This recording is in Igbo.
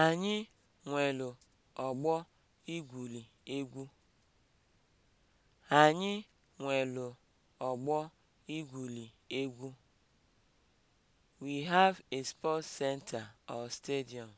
Anyị nwelu ọgbọ igwuli egwu. Anyị nwelu ọgbọ igwuli egwu. We have a sports center or stadium.